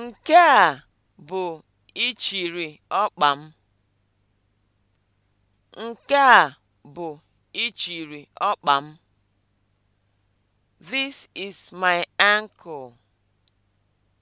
Nke a bụ ichiri ọkpa m. ọkpa m. This is my ankle.